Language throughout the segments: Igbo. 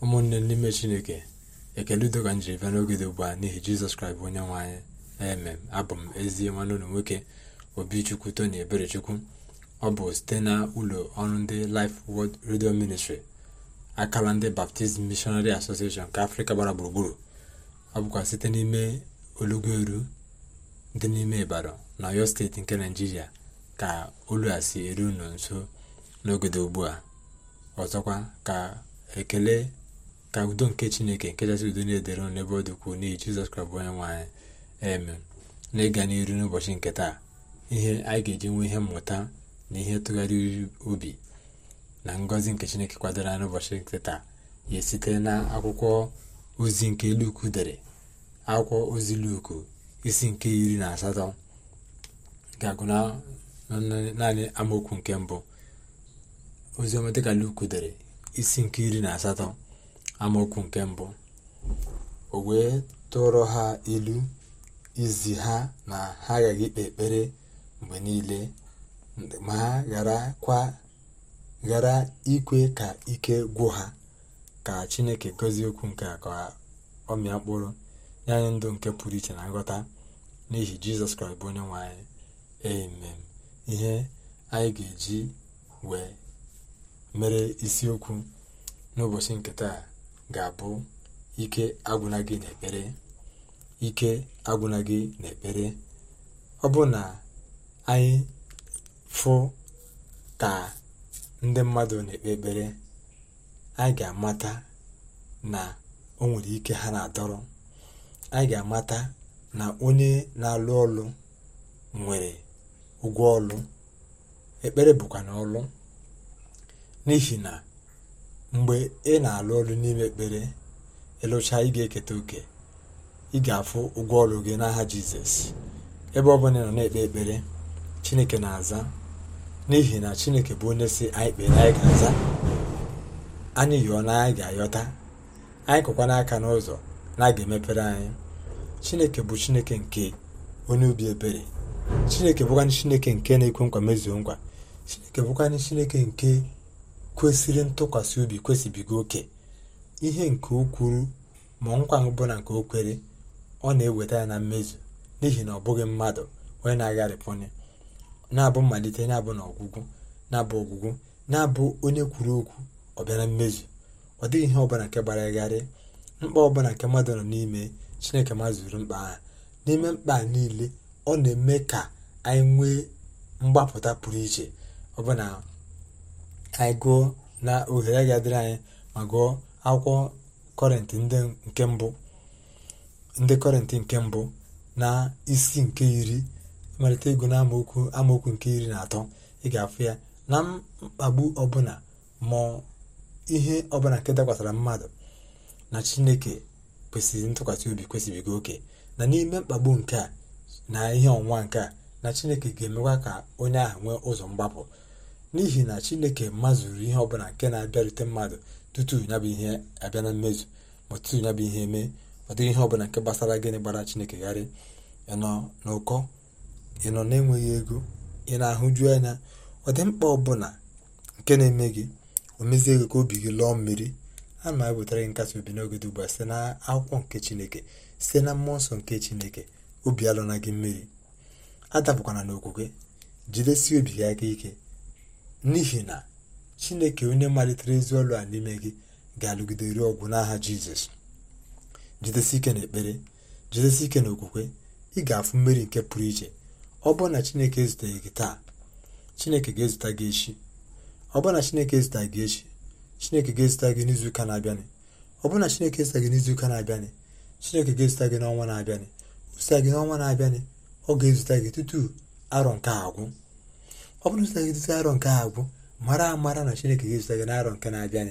ụmụnne n'ime chineke ekele udo ka njiri bịa n'oge dị ugbu a n'ihi jizọs kraịst bụ onye nwe anyị emem abụ m ezi nwanne ụlọ nwoke obichukwu tony eberechukwu ọ bụ site na ụlọ ọrụ ndị Life wod Radio Ministry akala ndị Baptist mishonari Association nke afrịka gbara gburugburu ọ bụkwa site n'ime olugoru dị n'ime ịbara na ọyọ steeti nke naijiria ka olu a si eru nso n'oge dị ugbu a ọzọkwa ka ekele ka udo nke chineke nke kachasị udo na-edere ụnụ ebe ọ dịkwuo n'ihi jizọs kraịst onye nwe eme na ịga n'iru n'ụbọchị nke taa ihe anyị ga-eji nwee ihe mmụta na ihe tụgharịrị obi na ngọzi nke chineke kwadoro n'ụbọchị nke taa ya site na akwụkwọ ozi nke luku dere akwụkwọ ozi luku isi nke iri na asatọ ga-agụ naanị amaokwu nke mbụ oziọma dịka luku dere isi nke iri na asatọ amaokwu nke mbụ o wee tụrụ ha ilu izi ha na ha agaghị ikpe ekpere mgbe niile ma ha ghara ikwe ka ike gwụ ha ka chineke gozie okwu nke a ka ọ mịa mkpụrụ ya anyị ndụ nke pụrụ iche na nghọta n'ihi jizọs kraịst bụ onye nwanyị anyị amen ihe anyị ga-eji wee mere isiokwu n'ụbọchị nke taa ga-abụ ike agwụna gị n'ekpere ike agwụna gị n'ekpere ọ bụ na anyị fụ ka ndị mmadụ na-ekpe ekpere anyị ga-amata na o nwere ike ha na-adọrọ anyị ga-amata na onye na-alụ ọlụ nwere ụgwọ ọlụ ekpere bụkwa na ọlụ n'ihi na mgbe ị na alụ ọrụ n'ime ekpere ịlụcha ị ga-eketa oke ị ga-afụ ụgwọ ọrụ gị n'aha jizọs ebe ọ ị nọ na-ekpe ekpere chineke na-aza n'ihi na chineke bụ onye si anyị kpere anyị ga-aza anyị yọọ na anyị ga-ayọta anyị kụkwana aka n'ụzọ na a ga-emepere anyị chineke bụ chineke nke onye obi ebere chineke bụkwanị chineke nke na-ekwe nkwa mezuo nkwa chineke bụkwanị chineke nke kwesịrị ntụkwasị obi kwesịbigo oke ihe nke o kwuru ma nkwa ọbụla nke o kwere ọ na-eweta ya na mmezu n'ihi na ọ bụghị mmadụ onye na-agharịpụnye na-abụ mmalite na-abụ na ọgwụgwụ na-abụ ọgwụgwụ na-abụ onye kwuru okwu ọ bịara mmezu ọ dịghị ihe ọbụla nke gbara mkpa ọbụla nke mmadụ nọ n'ime chineke mazuru mkpa ha n'ime mkpa niile ọ na-eme ka anyị nwee mgbapụta pụrụ iche ọbụna anyị gụọ na ohere ga-adịrị anyị ma gụọ akwụkwọ kọrịntị nke mbụ ndị kọrịntị nke mbụ na isi nke iri malite ego na amaokwu amaokwu nke iri na atọ ị ga-afụ ya na mkpagbu ọbụla ma ihe ọbụla nke dakwasara mmadụ na chineke kwesịrị ntụkwasị obi kwesịrịgo oke na n'ime mkpagbu nke a na ihe ọnwa nke a na chineke ga-emekwa ka onye ahụ nwee ụzọ mgbapụ n'ihi na chineke mazụrụ ihe ọbụla nke na-abịarute mmadụ tutu ya bụ ihe abịa na mmezu ma tutu ya bụ ihe mee ọ dịghị ihe ọbụla nke gbasara gịnị gbara chineke gharị ịnọ n'ụkọ ịnọ na-enweghị ego ị na-ahụju anya ọ dị mkpa ọbụla nke na-eme gị o mezie ego ka obi gị lụọ mmiri a na ewetara gị nkasi obi n'oge dị ugbu a site na akwụkwọ nke chineke site na mmụọ nsọ nke chineke obi alụna gị mmiri adapụkwana n'okwukwe jidesie obi gị aka ike n'ihi na chineke onye malitere ezi ọlụ a n'ime gị ga-alụgide ọgwụ n'aha jizọs jidesi ike na ekpere jidesi ike na okwukwe ị ga-afụ mmeri nke pụrụ iche ọ bụrụ na chineke ezuteghị gị taa chineke ga-ezute gị echi ọ bụrụ na chineke ezute gị echi chineke ga-ezute gị n'izuụka na-abịanị ọ bụrụ na chineke ezute gị n'izuụka na-abịanị chineke ga-ezute gị n'ọnwa na-abịanị o gị n'ọnwa na-abịanị ọ ga-ezute gị tutu arọ nke agwụ ọ bụrụ na gị arọ nke agwụ mara amara na chineke ga-ezụta gị n'arọ nke na-abịa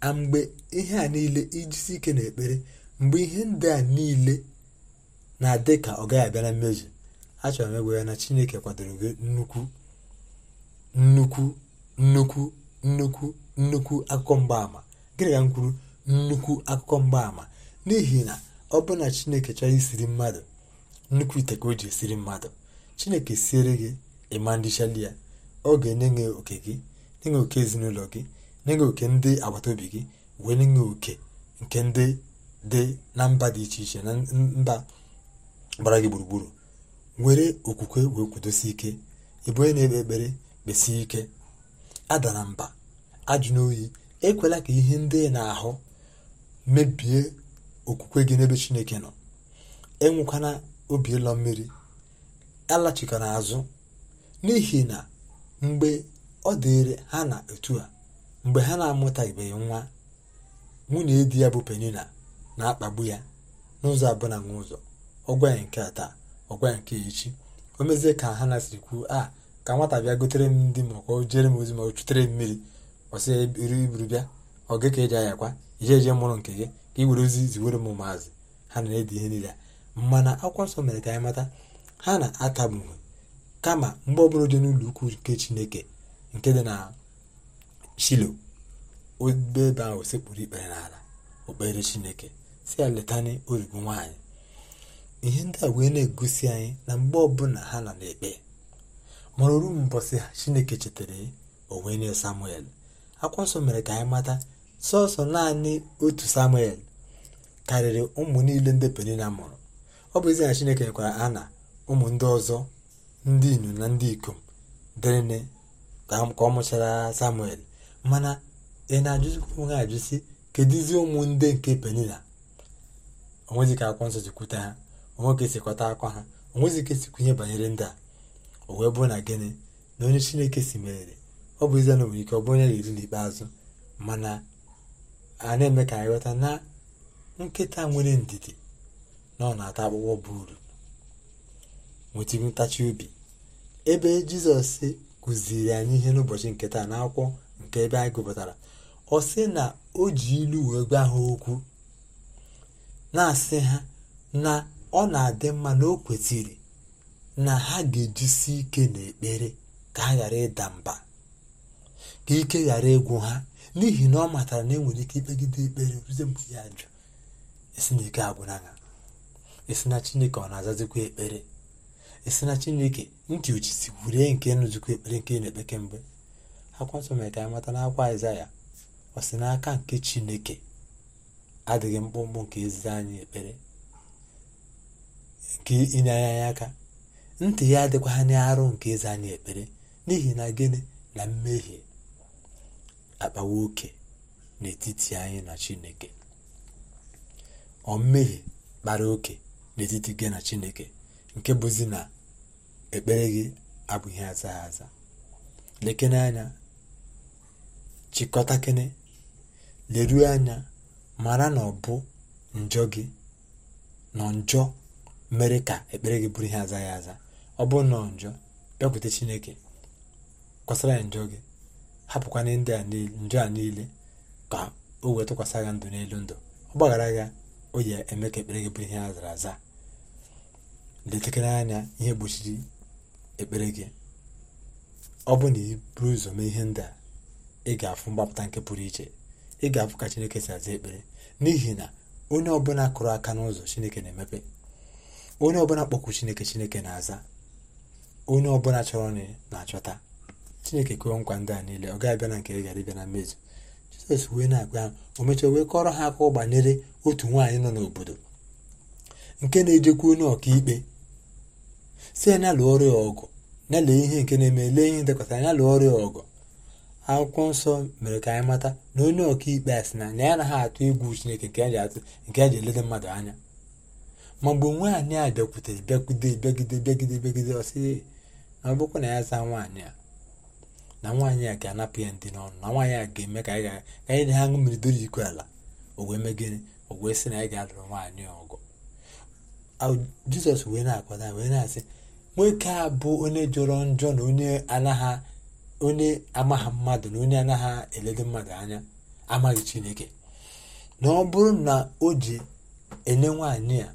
a mgbe ihe a niile ijisi ike na ekpere mgbe ihe ndị a niile na-adị ka ọ gaghị abịa na mmezu achọrọ m egwe ya na chineke kwadoro gị nnukwu nnukwu nnukwu nnukwu nnukwu akụkọ mgbaàmà gịnị ka m kwuru nnukwu akụkọ mgbaàmà n'ihi na ọ bụrụ na chineke chọrọ isiri mmadụ nnukwu ite ka o ji esiri mmadụ chineke siere gị ịma ndị chalia. oge n'enye oke gị n'enye oke ezinụlọ gị nye oke ndị agbata obi gị wee n'enye oke nke ndị dị na mba dị iche iche na mba gbara gị gburugburu Nwere okwukwe wee kwudosie ike ịbụ na-ekpe ekpere kpesie ike adara mba ajụ n'oyi ekwela ka ihe ndị na-ahụ mebie okwukwe gị n'ebe chineke nọ enwekwana obi ịlọ mmiri alachikana azụ n'ihi na mgbe ọ dịrị ha na otu a mgbe ha na-amụtabeghị nwa nwunye di ya bụ penina na-akpagbu ya n'ụzọ abụọ na nwa ụzọ ọgwa ya nke taa ọgwa ya nke echi o mezie ka ha na siri kwuo a ka nwata bịa gotere m ndị ma ọ jere m ozi ma ọ chutere mmiri ọsị iri iburu bịa ọ gị ka eji ayakwa ije eje mụrụ nke gị ka i were ozi ziwere m maazị ha na-edi ihe niile mana akwụkwọ nsọ mere ka anyị mata ha na-atagbughị kama mgbe ọbụla dị n'ụlọ ukwu nke chineke nke dị na shilo ebe ahụ sekpụrụ ikpere n'ala okpere chineke si ya letani origo nwaanyị ihe ndị a wee na-egosi anyị na mgbe ọbụla ha nọ n'ekpe ma oru mbọsị chineke chetara onwe wee nye samuel akwụkwọ mere ka anyị mata sọsọ naanị otu samuel karịrị ụmụ niile ndị penina mụrụ ọ bụ ezi na chineke nyekwara ana ụmụ ndị ọzọ ndị inyom na ndị ikom dịrịnị ka ọ mụchara samuel mana ị na-ajụzikwa onwe ajụsi kedụzi ụmụnde nke penila onwezi ka akwọ nsọ jikwute ha onwe sikọta akwa ha onwezi ka e kwunye banyere ndị a o wee bụrụ na gịnị na onye chineke si merere ọ bụ ezie na nwere ike ọ bụ onye ga-eri n'ikpeazụ mana a na-eme ka anyị ghọta na nkịta nwere ndidi na ọ na-ata akpụkpọ bụ uru nwetago ntachi obi ebe jizọs kụziri anyị ihe n'ụbọchị nke taa n'akwụkwọ nke ebe anyị gụpụtara ọ sị na o ji ilu wee gwa ha okwu na-asị ha na ọ na-adị mma na o kwesịrị na ha ga-ejisi ike n'ekpere ka ha ghara ịda mba ka ike ghara ịgwụ ha n'ihi na ọ matara na enwere ike ikpegide ekpere ruzie mgbe ya jụ esi na ike na ya esi na chineke ọ na-azazikwa ekpere esi na chineke ntị uchi gwurie nke nzukọ ekpere nke na-ekpe kemgbe akwatụ mere ka anyị mata n'akwa aịzaya ọ sị n'aka nke chineke adịghị mkpụmkpụ nke eziri anyị ekpere nke inye anyị aka ntị ya adịkwa ha arụ nke eze anyị ekpere n'ihi na gịnị na mmehie akpawa oke n'etiti anyị na chineke ọ mmehie kpara oke n'etiti gị na chineke nke bụzi na ekpere gị ihe aza aza lekene anya chịkọtakene leruo anya mara na ọ bụ njọ gị nọ njọ mere ka ekpere gị bụrụ ihe aza azaghị aza ọ bụ nọ njọ bịakwute chineke kwasara ya njọ gị hapụkwana ndị njọ a niile ka o wee tụkwasị gị ndụ n'elu ndụ ọ gbaghara oyi o eme ka ekpere gị bụrụ ihe azara aza letekere anya ihe gbochiri ekpere gị ọ bụ na i buru ụzọ mee ihe ndị a ị ga-afụ mgbapụta nke pụrụ iche ị ga-afụ ka chineke si aza ekpere n'ihi na onye ọbụla kụrụ aka n'ụzọ chineke na-emepe onye ọbụla kpọkwu chineke chineke na-aza onye ọbụla chọrọ nri na-achọta chineke kụọ nkwa ndị a niile ọ gaghị bịa na nke ị gara ịbịa na mmezu jizọs wee na-agwa ya o mechara wee kọrọ ha akụkọ banyere otu nwaanyị nọ n'obodo nke na ejekwu onye ọkaikpe si ya na-alụ ọrụ ọgụ na-alụ ihe nke na-eme lee ihe dekọtara ya lụọ ọrụ ọgụ akwụkwọ nsọ mere ka anyị mata na onye ọka a sị na na ya anaghị atụ egwu chineke nke eji asị nke ji elede mmadụ anya ma mgbe nwaanyị a bịakwutere bịagide bịagide bịagide bịagide ọsị na ọ na ya zaa nwaanyị a na nwaanyị a ga-anapụ ya ndị n'ọnụ na nwaanyị a ga-eme ka anyị ka anyị na ha ṅụ doro iko ala owee wee owee sị na anyị ga-alụrụ nwaanyị ọgụ jizọs wee na-akwado wee na-asị nwoke a bụ onye jọrọ njọ na onye anaghị onye amaghị mmadụ na onye anaghị eledo mmadụ anya amaghị chineke na ọ bụrụ na o ji enye nwaanyị a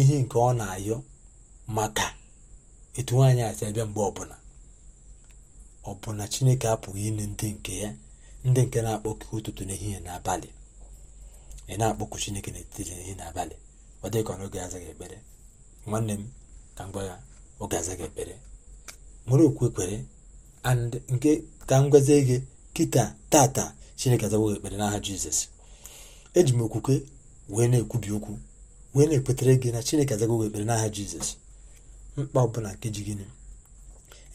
ihe nke ọ na-ayọ maka etu nwaanyị a si abịa mgbe ọbụla ọ bụ na chineke apụghị inye ndị nke ya ndị nke na-akpọkụ ụtụtụ n'ehihie n'abalị ị na-akpọkụ chineke n'etiti n'ehihie n'abalị ọ dịghị ka ọ n'oge azaghị ekpere nwanne m ka m gwa ya oge ga-aza gị ekpere nwere okwu ekpere and nke ka m gwazie gị kịta tata chineke azawo gị ekpere n'aha jizọs eji m okwukwe wee na-ekwubi okwu wee na ekpetara gị na chineke azago gị ekpere n'aha jizọs mkpa ọbụla nke ji gịnị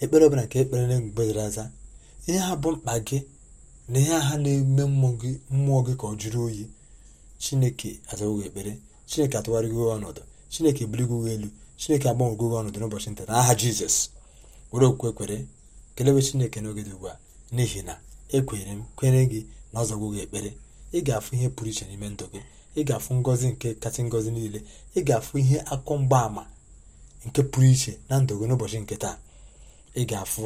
ekpere ọbụla nke ekpere na mgbe aza ihe ha bụ mkpa gị na ihe ha na-eme mmụọ gị ka ọ jụrụ oyi chineke azawo gị ekpere chineke atụgharịgo ọnọdụ chineke ebirigo elu chineke agbanwego gị ọnọdụ n'ụbọchị nta aha jizọs were okwukwe kwere kelewe chineke n'oge dị ugbu a n'ihi na ekwere m kwere gị na ọ zọgwo gị ekpere ị ga-afụ ihe pụrụ iche n'ime ndụ gị ị ga-afụ ngọzi nke kasị ngọzi niile ị ga-afụ ihe akụ mgbaàmà nke pụrụ iche na ndụ gị n'ụbọchị nke taa ị ga-afụ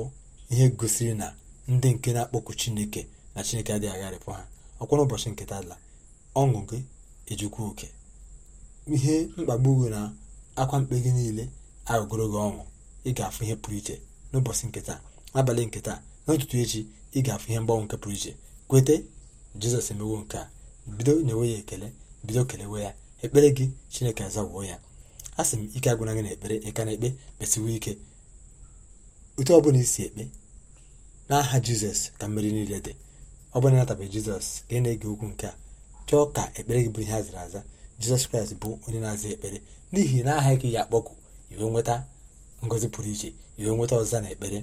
ihe gosiri na ndị nke na-akpọku chineke na chineke adịghị agharịpụ ha ọkwa n'ụbọchị nke taa la ọṅụ gị ejikwa oke ihe mkpagbu gị na akwa mkpe gị niile agụgoro gị ọnwụ ị ga-afụ ihe pụrụ iche n'ụbọchị nketa n'abalị nketa n'ụtụtụ echi ị ga-afụ ihe mgbanwe nke pụrụ iche kwete jizọs emewo nke a bido nyewe ya ekele bido kelewe ya ekpere gị chineke azawoo ya a sị m ike agwụna gị na ekpere ịka na ekpe kpesiwe ike ute ọ bụla isi ekpe n'aha jizọs ka mmeri niile dị ọ bụla natabeghị jizọs ka ị na-ege okwu nke a chọọ ka ekpere gị bụrụ ihe a zara aza jizọs kraịst bụ onye na-aza ekpere n'ihi na aha gị ya akpọku iwe nweta ngọzi pụrụ iche iwe nweta ọzọ na ekpere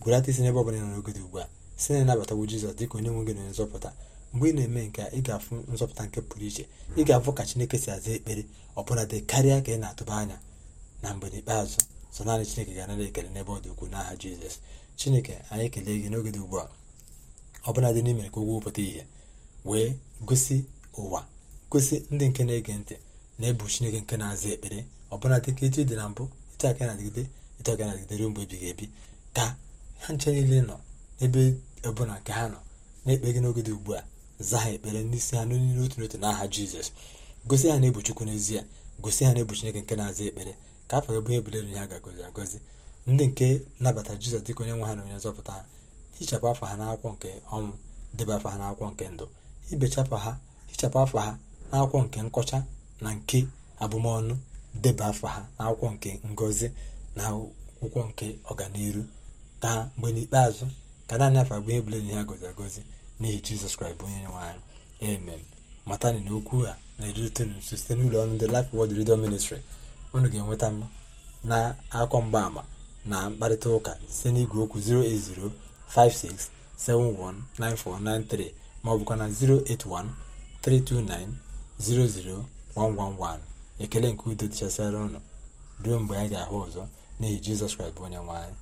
gwerata isi n'ebe ọbụla nọ n'ogode ugbu a si na ịnabatawo jizọs dịka onye nwe gị na nzọpụta mgbe ị na-eme nke ị ga-afụ nzọpụta nke pụrụ iche ị ga-afụ ka chineke si aza ekpere ọbụla karịa ka ị na-atụba anya na mgbe n'ikpeazụ sọ naanị chineke ga-anara ekele n'ebe ọ dị ukwuu n'aha jizọs chineke anyị kelee gị n'oge dị ugbu a ọbụla dị n'ime ka ụgwọ pụta ihe wee gosi ụwa kwesị ndị nke na-ege ntị na-ebu chineke nke na-aza ekpere ọbụla dịka echi e dị na mbụ etu aka na-adịgide etu aka na-adịgide ruo mgbe ebighị ebi ka ha nche niile nọ n'ebe ọbụla nke ha nọ na-ekpe gị n'oge dị ugbu a zaa ha ekpere n'isi ha n'olu n'otu n'otu n'aha jizọs gosi ha na-ebu chukwu n'ezie gosi ha na-ebu chineke nke na-aza ekpere ka afọ gị bụnye ebulere ihe a ga-agọzi agọzi ndị nke nabata jizọs dịka onye nwe ha na onye nzọpụta ha hichapụ afọ ha n'akwụkwọ nke ọnwụ debe afọ ha n'akwụkwọ nke ndụ ibechapụ ha hichapụ afọ ha n'akwụkwọ nke nkọcha na nke abụmọnụ deba afọ ha n'akwụkwọ nke ngọzi na akwụkwọ nke ọganiru taa mgbe n'ikpeazụ ka naanị afọ abụọ ebule na ya gozi agozi n'ihi jizọs kraịst bụ onye nwe anyị matani na okwu a na-erite nso site n'ụlọ ọnụ ndị lif Word Radio Ministry unu ga-enweta m na akwọ mgbaama na mkparịta ụka site n'igwe okwu 08056719493 maọbụkwa na 081 329 00111 ekele nke udo dịchasịara ụnụ ruo mgbe anyị ga-ahụ ọzọ n'ihi jizọs kraịst bụ onye nwanyị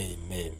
amen